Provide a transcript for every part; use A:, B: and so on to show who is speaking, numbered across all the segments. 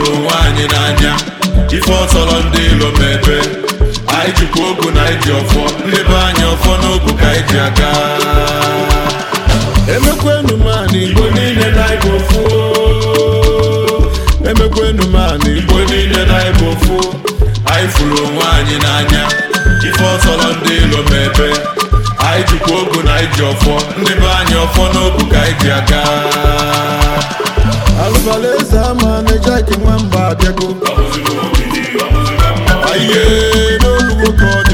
A: hụrụ onwe anyị n'anya ife ọsọrọ ndị ilo mebe anyị jikwa ogu na iji ọfọ ndị anyị ọfọ n'ogu ka anyị ji aga emekwenu mana igbo niile na igbo ofu emekwenu mana igbo niile na igbo ofu anyị fụrụ onwe anyị n'anya ife ọsọrọ ndị ilo mebe anyị jikwa ogu na iji ọfọ ndị anyị ọfọ n'ogu ka like nwamba mba abịago aie n'olu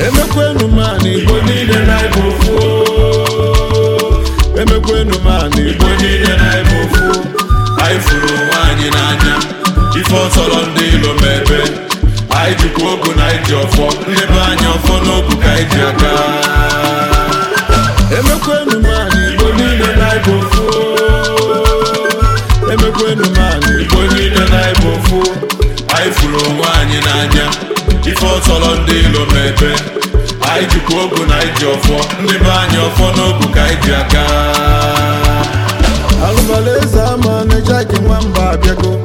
A: emekwenu m na igbo niile na ịbụ ofu emekwenu m ana igbo niile na ịbụ ofu anyị furu onwe anyị n'anya ife ọtọrọ ndị ilo m ebe anyị jikwa ogu na iji ọfọ ndebe anyị ọfọ n'ogu ka anyị ji aka. tọrọ ndị ilo mepe anyị jikwa ogu na anyị ji ọfọ ndị be anyị ọfọ n'ogu ka anyị ji aka alụbalaeze ama na-eji aka nwamba abịago